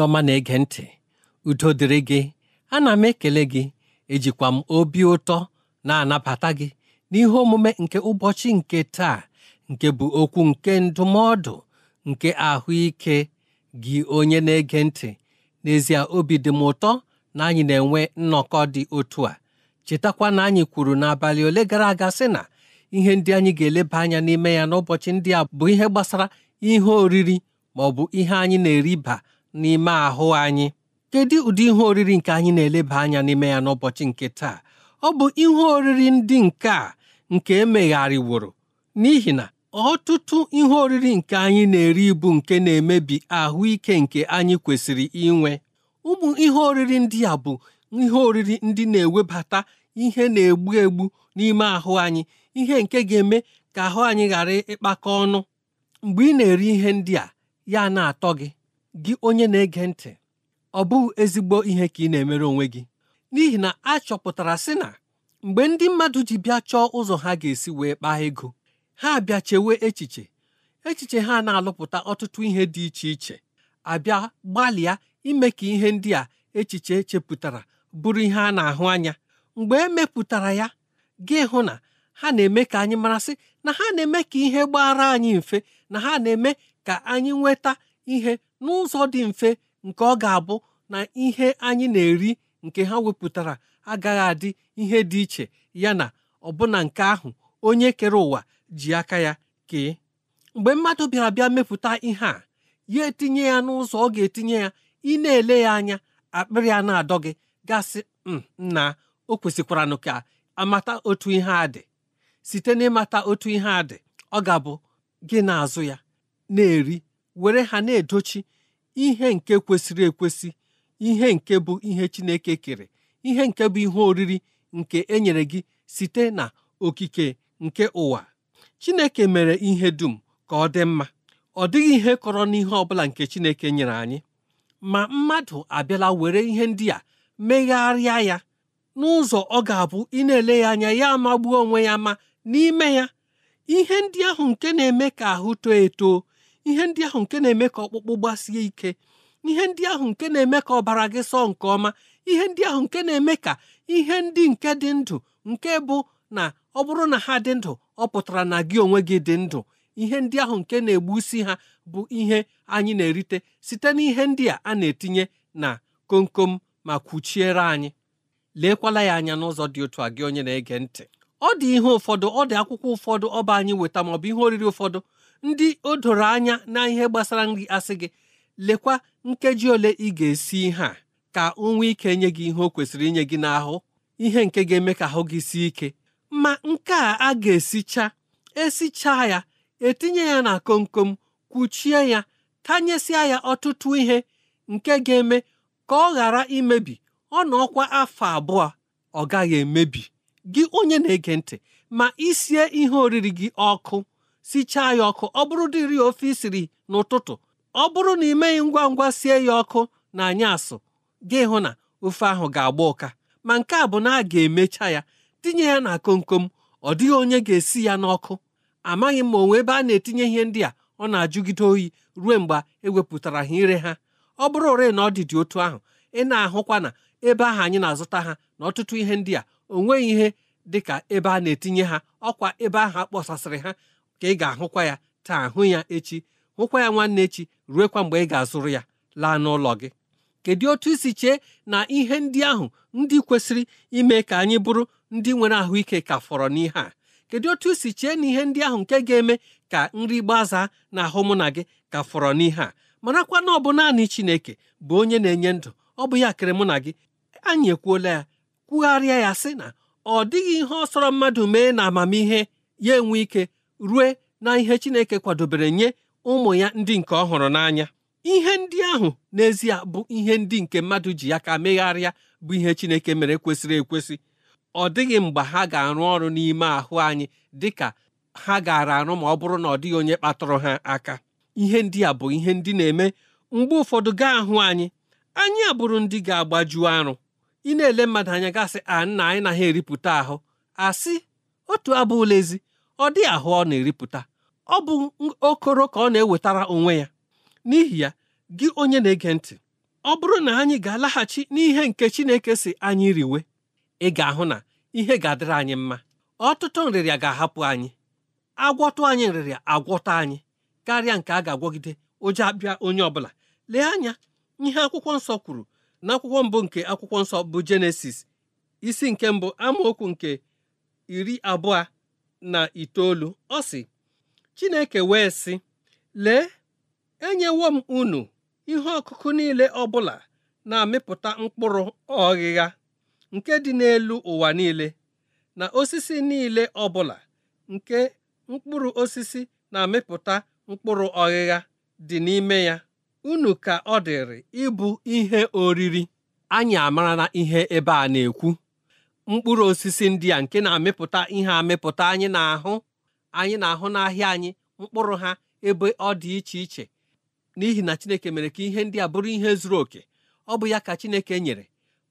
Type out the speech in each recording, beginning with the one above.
onye ọma na-ege ntị udo dịrị gị ana m ekele gị ejikwa m obi ụtọ na-anabata gị n'ihe omume nke ụbọchị nke taa nke bụ okwu nke ndụmọdụ nke ahụike gị onye na-ege ntị n'ezie obi dị m ụtọ na anyị na-enwe nnọkọ dị otu a chetakwa na anyị kwuru n'abalị ole gara aga sị na ihe ndị anyị ga-eleba anya n'ime ya n'ụbọchị ndị a bụ ihe gbasara ihe oriri ma ọ bụ ihe anyị na-eriba n'ime ahụ anyị kedu ụdị ihe oriri nke anyị na-eleba anya n'ime ya n'ụbọchị nke taa ọ bụ ihe oriri ndị nke a nke emegharịworo n'ihi na ọtụtụ ihe oriri nke anyị na-eri ibu nke na-emebi ahụike nke anyị kwesịrị inwe ụmụ ihe oriri ndị a bụ ihe oriri ndị na-ewebata ihe na-egbu egbu n'ime ahụ anyị ihe nke ga-eme ka ahụ anyị ghara ịkpakọ ọnụ mgbe ị na-eri ihe ndị a ya na-atọ gị gị onye na-ege ntị ọ bụghị ezigbo ihe ka ị na-emere onwe gị n'ihi na a chọpụtara sị na mgbe ndị mmadụ ji bịa chọọ ụzọ ha ga-esi wee kpaa ego ha bịa chewe echiche echiche ha na-alụpụta ọtụtụ ihe dị iche iche abịa gbalịa ime ka ihe ndị a echiche echepụtara bụrụ ihe a na-ahụ anya mgbe emepụtara ya gị hụ na ha na-eme ka anyị marasị na ha na-eme ka ihe gbara anyị mfe na ha na-eme ka anyị nweta ihe n'ụzọ dị mfe nke ọ ga-abụ na ihe anyị na-eri nke ha wepụtara agaghị adị ihe dị iche ya na ọbụna nke ahụ onye kere ụwa ji aka ya kee mgbe mmadụ bịara bịa mepụta ihe a ya etinye ya n'ụzọ ọ ga-etinye ya ị na-ele ya anya akpịrị a na-adọ gị gasị mm, nna o kwesịkwara ka amata otu ihe a dị site n'ịmata otu ihe a dị ọ ga-abụ gị na-azụ ya na-eri were ha na-edochi ihe nke kwesịrị ekwesị ihe nke bụ ihe Chineke kere ihe nke bụ ihe oriri nke e nyere gị site na okike nke ụwa Chineke mere ihe dum ka ọ dị mma ọ dịghị ihe kọrọ n'ihe ọ bụla nke Chineke nyere anyị ma mmadụ abịala were ihe ndị a megharịa ya n'ụzọ ọ ga-abụ ị na-ele ya anya ya magbuo onwe ya ma n'ime ya ihe ndị ahụ nke na-eme ka ahụ too eto ihe ndị ahụ nke na-eme ka ọkpụkpụ gbasie ike ihe ndị ahụ nke na-eme ka ọbara gị sọọ nke ọma ihe ndị ahụ nke na-eme ka ihe ndị nke dị ndụ nke bụ na ọ bụrụ na ha dị ndụ ọ pụtara na gị onwe gị dị ndụ ihe ndị ahụ nke na-egbusi ha bụ ihe anyị na-erite site na ihe ndị a a na-etinye na komkom ma kwuchiere anyị leekwala ya anya n'ụzọ dị otu a gị onye na-ege ntị ọ dị ihe ụfọdụ ọ dị akwụkwọ ụfọdụ ọba anyị weta maọbụ ihe oriri ụfọdụ ndị o doro anya na ihe gbasara nri asị gị lekwa nkeji ole ị ga-esi ihe a ka o ike nye gị ihe o kwesịrị inye gị n'ahụ ihe nke ga-eme ka ahụ gị sie ike ma nke a a ga-esicha esicha ya etinye ya na komkom kwuchie ya tanyesịa ya ọtụtụ ihe nke ga-eme ka ọ ghara imebi ọ na ọkwa afọ abụọ ọ gaghị emebi gị onye na-ege ntị ma isie ihe oriri gị ọkụ sichaa ya ọkụ ọ bụrụ dịrị ofe isiri n'ụtụtụ ọ bụrụ na ị meghị ngwa ngwa sie ya ọkụ na anyasụ gị hụ na ofe ahụ ga-agba ụka ma nke a bụ na a ga-emecha ya tinye ya na komkom ọ dịghị onye ga-esi ya n'ọkụ amaghị m ma onwe ebe a na-etinye ihe ndị a ọ na-ajụgide oyi ruo mgbe ewepụtara ha ire ha ọ bụrụ ore na ọ dịdị otu ahụ ị na-ahụkwa na ebe ahụ anyị na-azụta ha na ọtụtụ ihe ndị a o nweghị ihe dịka ebe a na-etinye ha ọkwa ebe ahụ kpọsasịrị ha ka ị ga-ahụkwa ya taa hụ ya echi hụkwa ya nwanne echi ruekwa mgbe ị ga-azụrụ ya laa n'ụlọ gị kedu otu isi chee na ihe ndị ahụ ndị kwesịrị ime ka anyị bụrụ ndị nwere ahụike ka fọrọ n'ihe a kedu otu isi chee na ihe ndị ahụ nke ga-eme ka nri gbazaa na ahụ mụ na gị ka fọrọ n'ihe a marakwa na ọ bụ naanị Chineke bụ onye na-enye ndụ ọ bụ ya kere mụ na gị anyị ekwuola ya kwugharịa ya sị na ọ dịghị ihe ọ sọrọ mmadụ mee na amamihe ya enwe ike rue na ihe Chineke kwadobere nye ụmụ ya ndị nke ọ hụrụ n'anya ihe ndị ahụ n'ezie bụ ihe ndị nke mmadụ ji ya ka megharịa bụ ihe Chineke mere kwesịrị ekwesị ọ dịghị mgbe ha ga-arụ ọrụ n'ime ahụ anyị dị ka ha gaara arụ ma ọ bụrụ na ọ dịghị onye kpatụrụ ha aka ihe ndị a bụ ihe ndị na-eme mgbe ụfọdụ gaa ahụ anyị anyị abụrụ ndị ga agbajuo arụ ị na-ele mmadụ anya gasị a nna anyị naghị eripụta ahụ asị otu abụ ụlọ ezi ọ dị ahụ ọ na-eripụta ọ bụ okoro ka ọ na-ewetara onwe ya n'ihi ya gị onye na-ege ntị ọ bụrụ na anyị ga-alaghachi n'ihe nke Chineke si anyị riwe ị ga-ahụ na ihe ga-adịrị anyị mma ọtụtụ nrịrịa ga-ahapụ anyị agwọtụ anyị nrịrịa agwọta anyị karịa nke a ga-agwọgide ụjọ abịa onye ọbụla lee anya ihe akwụkwọ nsọ kwuru na akwụkwọ mbụ nke akwụkwọ nsọ bụ jenesis isi nke mbụ amaokwu nke iri abụọ na itoolu ọ sị Chineke wee sị lee enyewo m unu ihe ọkụkụ niile ọbụla na-amịpụta mkpụrụ ọghịgha nke dị n'elu ụwa niile na osisi niile ọbụla nke mkpụrụ osisi na-amịpụta mkpụrụ ọghịgha dị n'ime ya unu ka ọ dịrị ịbụ ihe oriri anyị amara na ihe ebe a na-ekwu mkpụrụ osisi ndị a nke na-amịpụta ihe amịpụta anyị na-ahụ anyị na-ahụ n'ahịa anyị mkpụrụ ha ebe ọ dị iche iche n'ihi na Chineke mere ka ihe ndị a bụrụ ihe zuru oke ọ bụ ya ka Chineke nyere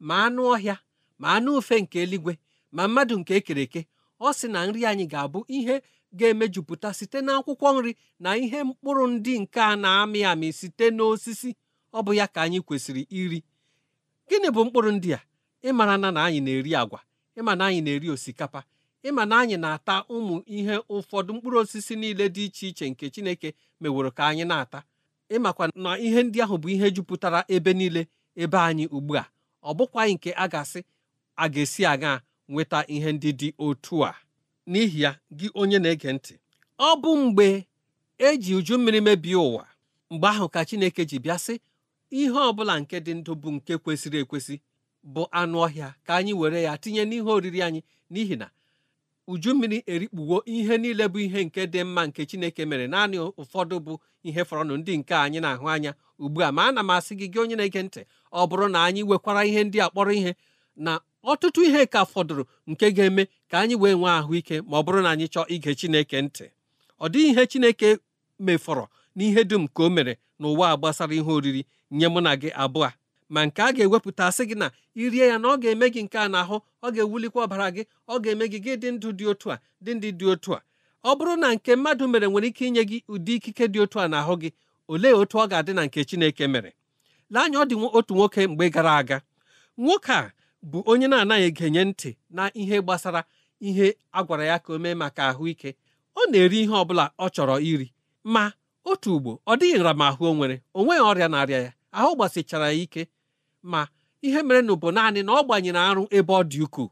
ma anụ ọhịa ma anụ ufe nke eluigwe ma mmadụ nke ekere eke ọ sị na nri anyị ga-abụ ihe ga-emejupụta site n'akwụkwọ nri na ihe mkpụrụ ndị nke a na-amị amị site n'osisi ọ bụ ya ka anyị kwesịrị iri gịnị bụ mkpụrụ ndị a ịmara na na anyị na-eri agwa ịma na anyị na-eri osikapa ịma na anyị na-ata ụmụ ihe ụfọdụ mkpụrụ osisi niile dị iche iche nke Chineke meworo ka anyị na-ata ịmakwa na ihe ndị ahụ bụ ihe jupụtara ebe niile ebe anyị ugbu a ọ bụkwaghị nke a ga-asị a ga-esi aga nweta ihe ndị dị otu a n'ihi ya gị onye na-ege ntị ọ bụ mgbe eji uju mmiri mebie ụwa mgbe ahụ ka Chineke ji bịa sị ihe ọ bụla nke dị ndụ bụ nke kwesịrị ekwesị bụ anụ ọhịa ka anyị were ya tinye n'ihe oriri anyị n'ihi na uju mmiri erikpuwo ihe niile bụ ihe nke dị mma nke chineke mere naanị ụfọdụ bụ ihe fọrọnụ ndị nke anyị na-ahụ anya ugbu a ma ana m asị gị gị onye na-ege ntị ọ bụrụ na anyị wekwara ihe ndị a kpọrọ ihe na ọtụtụ ihe ka fọdụrụ nke ga-eme ka anyị wee nwee ahụike ma ọ bụrụ na anyị chọọ ige chineke ntị ọ dịghị ihe chineke mefọrọ n'ihe dum ka o mere n'ụwa gbasara ihe oriri nye mụ na gị abụọ ma nke a ga-ewepụta sị gị na irie ya na ọ ga-eme gị nke a n'ahụ ọ ga-ewulikwa ọbara gị ọ ga-eme gị gị dị ndụ dị otu a dị ndị dị otu a ọ bụrụ na nke mmadụ mere nwere ike inye gị ụdị ikike dị otu a n'ahụ gị olee otu ọ ga-adị na nke Chineke mere lee anya ọ dị otu nwoke mgbe gara aga nwoke a bụ onye na-anaghị egenye ntị na ihe gbasara ihe a gwara ya ka o mee maka ahụike ọ na-eri ihe ọ bụla ọ chọrọ iri ma otu ugbo ọ dịghị nramahụ o nwere o nweghị ọrịa na-arịa ya ahụ gbasichara ya ike ma ihe mere nụ bụ naanị na ọ gbanyere arụ ebe ọ dị ukwuu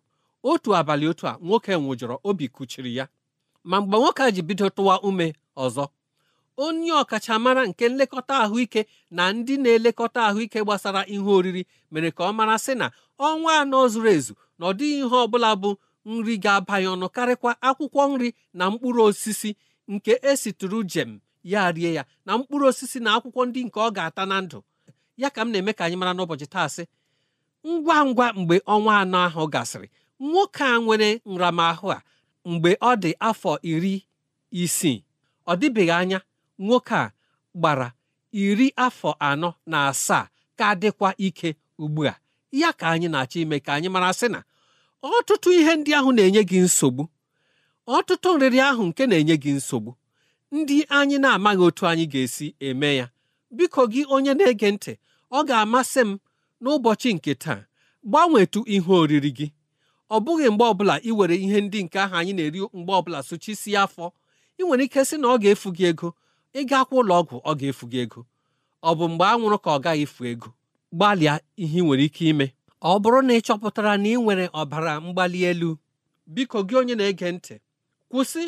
otu abalị otu a nwoke nwụjọrọ obi kuchiri ya ma mgbe nwoke a ji bido tụwa ume ọzọ onye ọkachamara nke nlekọta ahụike na ndị na-elekọta ahụike gbasara ihe oriri mere ka ọ mara sị na ọnwa anọ zuru ezu na ọ dịghị ihe ọ bụla bụ nri ga abanye ọnụ karịkwa akwụkwọ nri na mkpụrụ osisi nke esitụrụ jem ya rie ya na mkpụrụ osisi na akwụkwọ ndị nke ọ ga-ata na ndụ ya ka m na-eme ka anyị mara n'ụbọchị taa sị ngwa ngwa mgbe ọnwa anọ ahụ gasịrị nwoke a nwere nramahụ a mgbe ọ dị afọ iri isii ọ dịbeghị anya nwoke a gbara iri afọ anọ na asaa ka dịkwa ike ugbu a ya ka anyị na-achọ ime ka anyị mara sị na ọtụtụ ihe ndị ahụ na-enye gị nsogbu ọtụtụ nrịrị ahụ nke na-enye gị nsogbu ndị anyị na-amaghị otu anyị ga-esi eme ya biko gị onye na-ege ntị ọ ga-amasị m n'ụbọchị nke taa gbanwetu ihe oriri gị ọ bụghị mgbe ọbụla ị were ihe ndị nke ahụ anyị na-eri mgbe ọbụla sochisie afọ ị nwere ike sị na ọ ga-efu gị ego ịga akwụ ụlọ ọgwụ ọ ga-efu gị ego ọ bụ mgbe anwụrụ ka ọ gaghị efu ego gbalịa ihe ị nwere ike ime ọ bụrụ na ị chọpụtara na ị nwere ọbara mgbali elu biko gị onye na-ege ntị kwụsị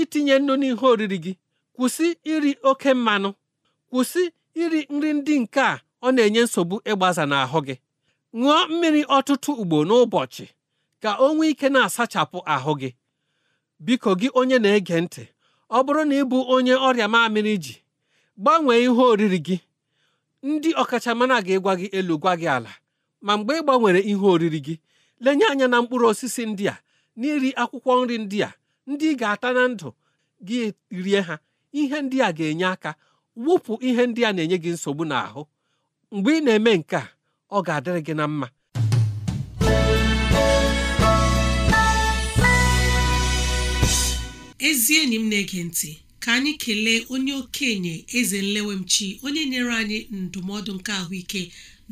itinye nnu n'ihe oriri gị kwụsị iri oke mmanụ kwụsị iri nri ndị nke a ọ na-enye nsogbu ịgbaza n'ahụ gị ṅụọ mmiri ọtụtụ ugbo n'ụbọchị ka o nwee ike na-asachapụ ahụ gị biko gị onye na-ege ntị ọ bụrụ na ị bụ onye ọrịa mamịrị ji gbanwee ihe oriri gị ndị ọkachamara ga-egwa gị elu gwa gị ala ma mgbe ị gbanwere ihe oriri gị lenye anya na mkpụrụ osisi ndị a na iri akwụkwọ nri ndị a ndị ị ga-ata na ndụ gị rie ha ihe ndị a ga-enye aka wụpụ ihe ndị a na-enye gị nsogbu n'ahụ mgbe ị na-eme nke a ọ ga-adịrị gị na mma ezi enyi m na-ege ntị ka anyị kelee onye okenye eze nlewemchi onye nyere anyị ndụmọdụ nke ahụike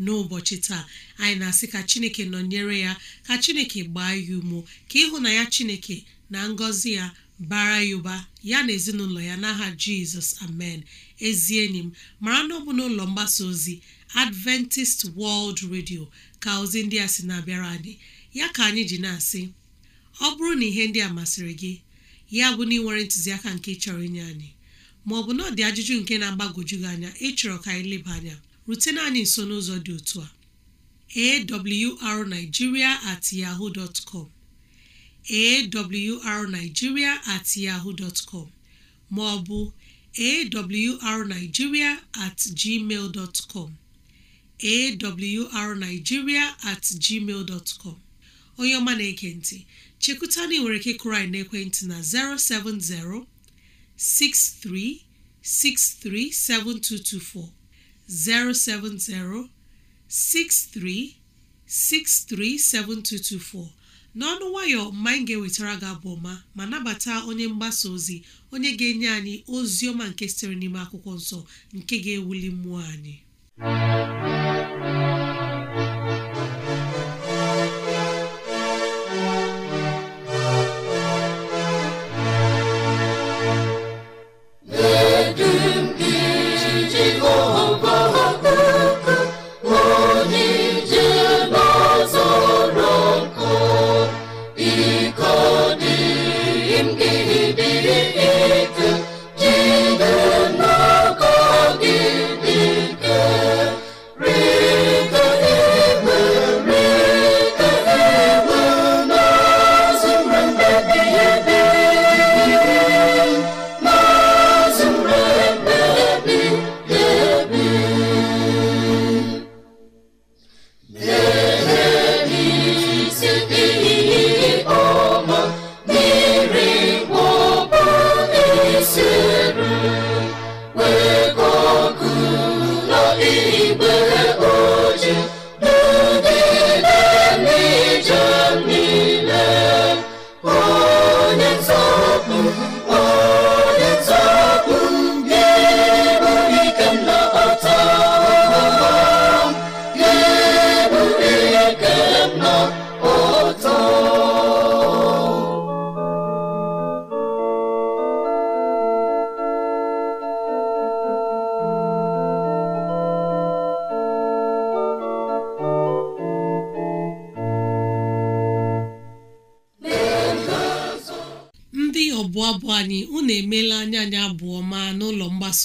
n'ụbọchị taa anyị na-asị ka chineke nọnyere ya ka chineke gbaa ya umo ka ịhụnanya chineke na ngọzi ya bara ya ụba ya na ezinụlọ ya n'aha jizọs amen ezi enyi m mara na ọ bụ n'ụlọ mgbasa ozi Adventist World Radio ka ozi ndị a si na-abịara anyị ya ka anyị ji na-asị ọ bụrụ na ihe ndị a masịrị gị ya bụ na ị nwere ntụziaka nke ịchọrọ inye anyị ma ọ bụ na ọ dị ajụjụ nke na agbagoju gị anya ịchọrọ ka anyị leba anya rutena anyị nso n'ụzọ dị otu a awrnigeria at yahoo dot com awrnigeria at yahoo dot com at gmail dot com awrnigeria at gmail dot com onye ọma na ekenti ntị na ị nwere ike kụrụ anyị n'ekwentị na 070 6363 7224 070 6363 7224 n'ọnụ nwayọọ mgbe anyị ga-ewetara gị abụ ọma ma nabata onye mgbasa ozi onye ga-enye anyị ozi ọma nke sitere n'ime akwụkwọ nsọ nke ga-ewuli mmụọ anyị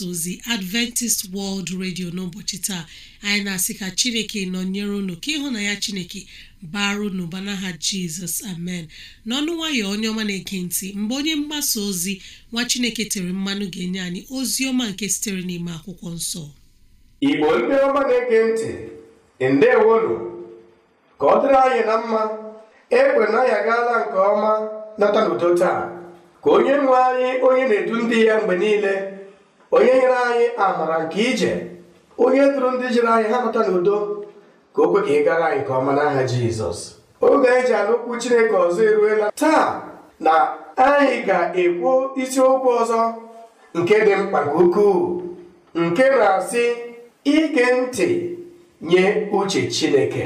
mgbasa ozi adventist world radio n'ụbọchị taa anyị na-asị ka chineke nọnyere unu ka ịhụ na ya chineke baru n'ụba n'aha jizọs amen n'ọnụ nwayọ onye ọma na-ege ntị mgbe onye mgbasa ozi nwa chineke tere mmanụ ga-enye anyị ozi ọma nke sitere n'ime akwụkwọ nsọ igbo ndị ọma na-ege ntị ndewonu ka ọ dịrị anyị na mma egbe na ya gaala nke ọma nata n'udo taa ka onye nwe anyị onye na-edu ndị ya mgbe niile onye nyere anyị amara nke ije onye dụrụ ndị jiri anyị ha nọta n'udo ka o kwe ka ị gara anyị nke ọma n'aha jizọs oge anyị e ji anụ chineke ọzọ eruela taa na anyị ga-ekwu isiokwu ọzọ nke dị mkpa nke ukwuu nke na-asị ige ntị nye uche chineke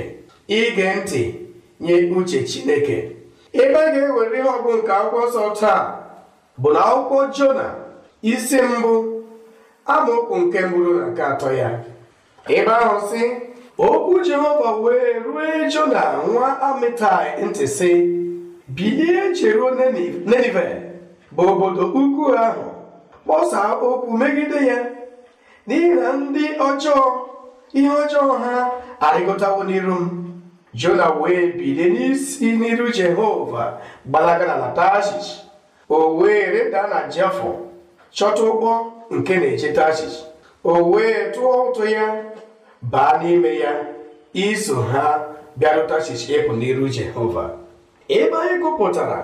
ige ntị nye uche chineke ebe a ga-ewere ihe ọgụ nke akwụkwọ nsọ taa bụ na akwụkwọ jona isi mbụ amaokwu nke mbụrụ na nke atọ ya ebe ahụ si. okwu jehova wee rue jona nwa amitai ntị si: bilie jeruo nenive bụ obodo ukwu ahụ kpọsa okwu megide ya n'ihi na ndị ọjọọ ihe ọjọọ ha arịgọtawo n'iru m jona wee bilie n'isi n'iru jehova gbalaga na tashish o wee reda na jafọ chọta ụgbọ nke na-echeta achịcha o wee tụọ ụtụ ya baa n'ime ya iso ha bịarụta achịcha ịpụ n'iru jehova ebe anyị gụpụtara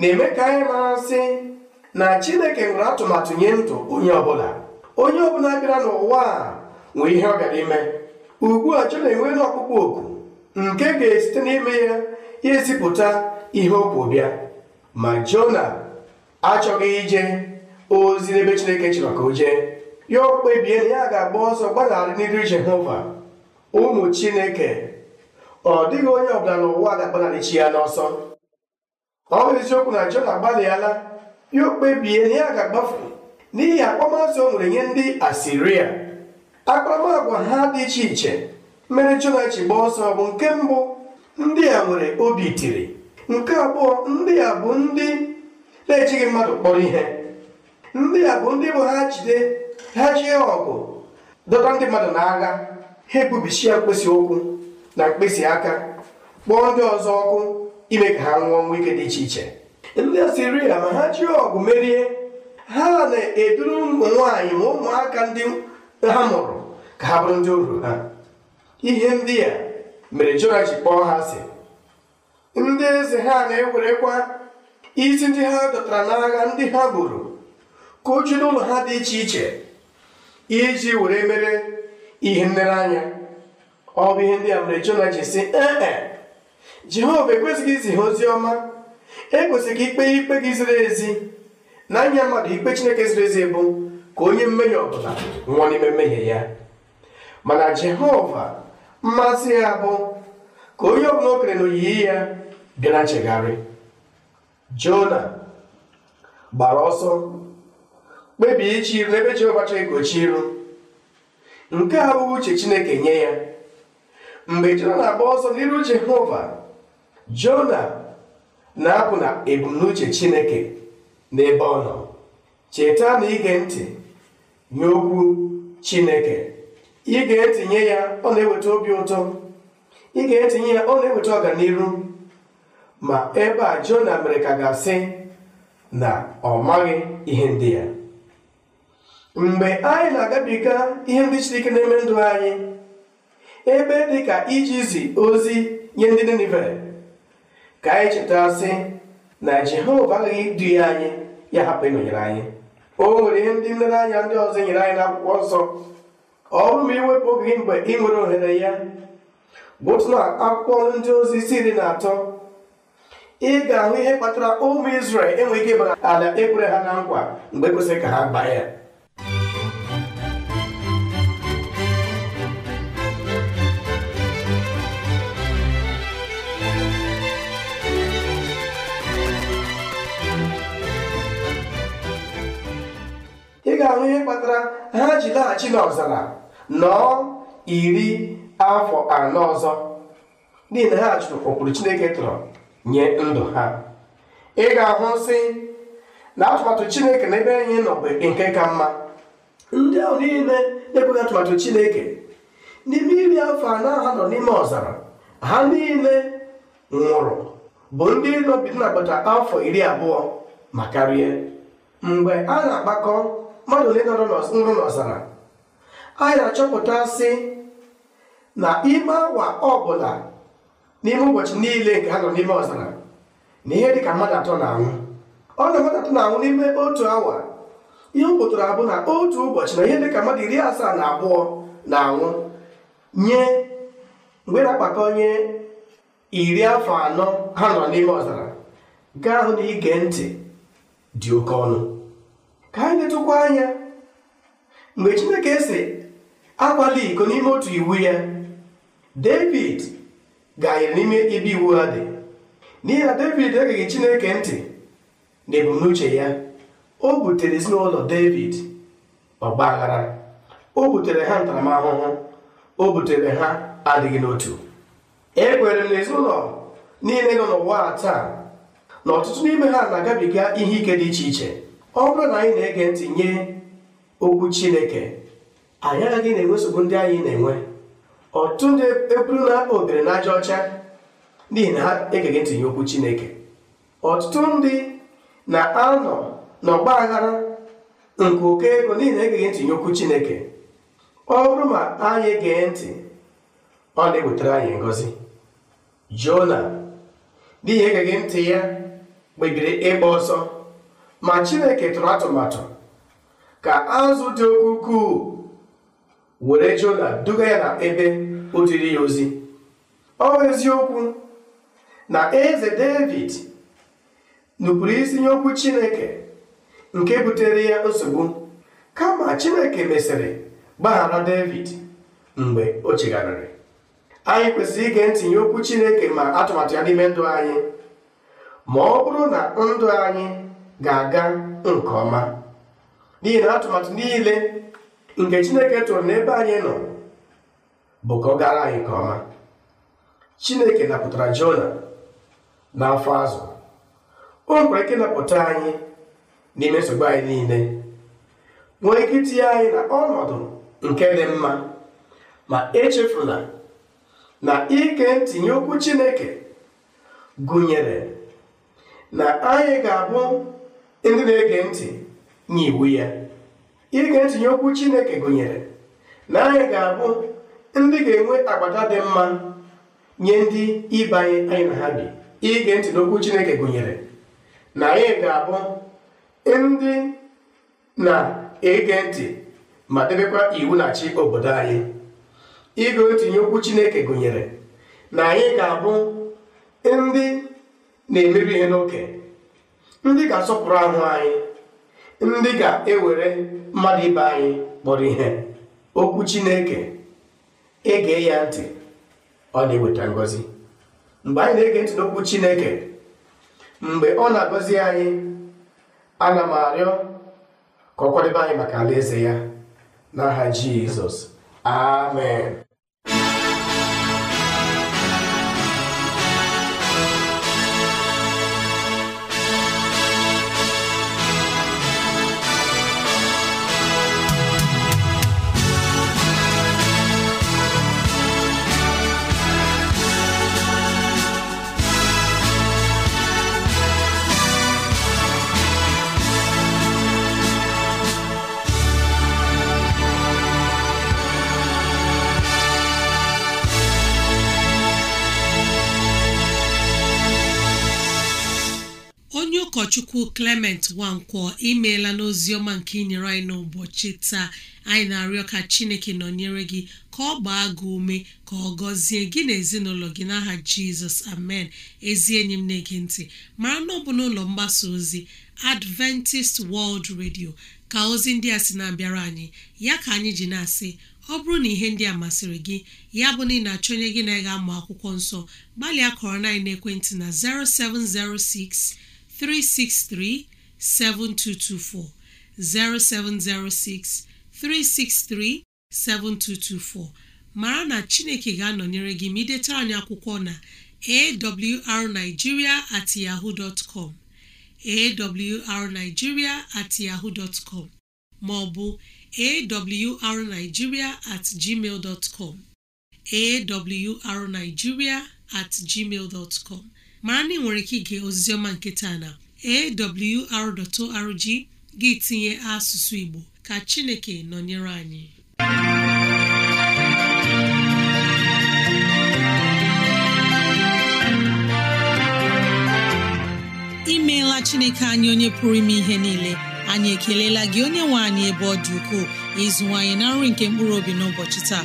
na-eme ka anyị mara sị na chineke nwere atụmatụ nye ndụ onye ọbụla onye ọbụla bịara n'ụwa a nwee ihe ọ bịara ime ugbu a Jona enweela ọkpụkpọ oku nke ga-esite n'ime ya ya ezipụta ihe o bịa ma Jona achọghị ije ozi n'ebe chineke chọrọ ka o jee ya o kpebie na ya ga-agba ọsọ gbadagharị n'iru jehova ụmụ chineke ọ dịghị onye ọbụla n'ụwa ga-agbanarị chi ya n'ọsọ ọ bụ eziokwu na jona gbalịala ya o kpebie na ya ga-agbafu n'ihi akpọmasị o nwere nye ndị asiria akparamagwa ha dị iche iche mere jona gbaa ọsọ bụ nke mbụ ndị a nwere obi tiri nke abụọ ndị a bụ ndị na-ejighị mmadụ kpọrọ ihe ndị a bụ ndị bụ ha jide ha jie ọgụ dọta ndị mmadụ n'agha ha ya mkpịsị ụkwụ na mkpịsị aka kpọọ ndị ọzọ ọkụ ime ka ha nwụọ nwa ike dị iche iche ndị Asiria ma ha jiri ọgụ merie ha na-eduru ụmụ nwaanyị ma ụmụaka ndị ha mụrụ ka ha bụrụ ndị oru ha ihe ndị a mere Jona ji kpọọ ha asị ndị eze ha na-ewerekwa isi ndị ha dọtara n'agha ndị ha gburu ka e e um o jiri ụlọ ha dị iche iche iji were mere ihe nlereanya ọ bụ ihe ndị a mere Jona ji si ee Jehova ekwesịghị izi ha ozi ọma ekwesịghị ikpe ikpe gị ziri ezi na anya mmadụ ikpe Chineke ziri ezi bụ ka onye mmehie ọbụla nwụọ n'ime mmehie ya mana Jehova mmasị ya bụ ka onye ọbụla o kere na oyiyi ya bịa na nchegharị Jona gbara ọsọ kpebie ichi iru ebe jeova chọrọ ịgochi iru nke a bụ uche Chineke nye ya mgbe Jona na-agba ọsọ n'iru Jehova Jona na-apụ na ebumnuche Chineke n'ebe ọ nọ cheta na ige ntị nye okwu Chineke ị ga-etinye ya ọ na-eweta obi ụtọ ị ga-etinye ya ọ na-eweta ọganiru ma ebe a Jona mere ka ga-asị na ọ maghị ihe ndị ya mgbe anyị na-agabiga ihe ndị Chineke na-eme ndụ anyị ebe dị ka ijizi ozi nye ndị Ninive ka anyị cheta sị na Jehova agaghị idu ya anyị ya hapụ ịnọnyere anyị o nwere ihe ndị nlere anya ndị ọzọ nyere anyị n'akwụkwọ nsọ ọ bụrụ ma iwepụ oge gị mgbe ị nwere ohere ya bụ otu na akwụkwọ ndị ozi si iri na atọ ị ga-ahụ ihe kpatara ụmụ Izrel enweghị ike ịbara ala ekwere ha na nkwa mgbe kwesịrị ka ha gbaa ya ị ga-ahụ ihe kpatara ha ji laghachi n'ọzara nọọ iri afọ anọ ọzọ n'ihi na ha chụrụ ụkpụrụ Chineke tụrụ nye ndụ ha ị ga-ahụ sị na atụmatụ Chineke na ebe anyị nọ bụ nke ka mma ndị ahụ niile na-ekweghị atụmatụ Chineke n'ime iri afọ anọ ha nọ n'ime ọzara ha niile nwụrụ bụ ndị nọbi agbata afọ iri abụọ ma karịa mgbe a na-agbakọ mmadụ ole nrụ n'ọzara anyị na-achọpụta sị na ime awa ọbụla n'ime ụbọchị niile nke ha nọ n'ime ọzara na ihe dịka mmadụ atọ na-anwụ ọ na mmadụ atọ na-anwụ n'ime otu awa ihe m abụ na otu ụbọchị na ihe dịka mmadụ iri asaa na abụọ na-anwụ nye mgbe na-akpata onye iri afọ anọ ha nọ n'ime ọzara gaa hụ na ige ntị dị oke ọnụ ka anyị letụkwa anya mgbe chineke si akwala iko n'ime otu iwu ya david anyịrị n'ime ebe iwu ha dị n'ihi na david egeghị chineke ntị na ebumnuche ya o butere ezinụlọ david ọgba aghara o butere ha ntaramahụhụ o butere ha adịghị n'otu ekwere m na ezinụlọ niile nọ n'ụwa taa na ọtụtụ n'ime ha na-agabiga ihe ike dị iche iche ọ bụrụ na anyị na-ege ntị nye okwu chineke anyị agaghị na-enwe nsogbu ndị anyị na-enwe ọtụtụ ndị ekwuru na obere na aja ọcha n'ihi na ha egeghị ntị nye okwu chineke ọtụtụ ndị na-anọ n'ọgba aghara nke oke ego n'ihi na egeghị ntị nye okwu chineke ọ bụrụ ma anyị gee ntị ọ na-ewetara anyị ngọzi jona n'ihi egeghị ntị ya kpebiri ịgba ọsọ ma chineke tụrụ atụmatụ ka azụ dị oke ukwuu were jona duga ya na ebe o jiri ya ozi ọ eziokwu na eze david nupụrụ isi nye okwu chineke nke butere ya nsogbu kama chineke mesịrị gbaghara david mgbe o chegharịrị anyị kwesịrị ige ntinye okwu chineke ma atụmatụ ya n'ime ndụ anyị ma ọ bụrụ na ndụ anyị ga-aga nke ọma n'ihi na atụmatụ niile nke chineke tụrụ n'ebe anyị nọ bụ ka anyị nke ọma chineke napụtara jona n'afọ azụ o nwere ike napụta anyị n'ime nsogbu anyị niile nwee ike itinye anyị na ọnọdụ nke dị mma ma echefula na ike ntinye okwu chineke gụnyere na anyị ga-abụ ndị na-ege ntị nye iwu ya ige ntị nye okwu Chineke gụnyere na anyị ga-abụ ndị ga-enwe agbata dị mma nye ndị ịbanye anyị na ha bi ige ntị n'okwu Chineke gụnyere na anyị ga-abụ ndị na-ege ntị ma debekwa iwu na-achị obodo anyị ige ntị nye okwu Chineke gụnyere na anyị ga-abụ ndị na-emebi ihe n'oke ndị ga-asọpụrụ ahụ anyị ndị ga-ewere mmadụ ibe anyị kpọrọ ihe okwu Chineke ege ya ntị ọ na-eweta ngọzi mgbe anyị na-ege ntị n'okwu Chineke mgbe ọ na-agọzi anyị ana m arịọ ka ọ kwadebe anyị maka alaeze ya n'aha Jizọs amen Chukwu Clement Nwankwo imeela n'ozi ọma nke inyere anyị n'ụbọchị taa anyị na-arịọ ka Chineke nọnyere gị ka ọ gbaa gị ume ka ọ gọzie gị na ezinụlọ gị n'aha Jizọs amen ezi enyi m na-ege ntị mara na ọ bụ n'ụlọ mgbasa ozi Adventist World Radio ka ozi ndị a sị na-abịara anyị ya ka anyị ji na-asị ọ bụrụ na ihe ndị a masịrị gị ya bụ na ị na-achọ onye gị na ga amụ akwụkwọ nsọ gbalịa kọrọ na ekwentị na 0706 363 7224 0706 363 7224 mara na Chineke ga-anọnyere gị ma anyị akwụkwọ na awrnigeria at yahoo dot com awrnigeria yahoo dot com ma ọ bụ awrnigeria at gmail dot com awrnigeria gmail dot com mara na ị nwere ike ige oziziọma nke taa na awr.org gị tinye asụsụ Igbo ka Chineke nọnyere anyị imeela Chineke anyị onye pụrụ ime ihe niile anyị ekelela gị onye nwe anyị ebe ọ dị ukwuu ịzụwanyị na nri nke mkpụrụ obi n'ụbọchị taa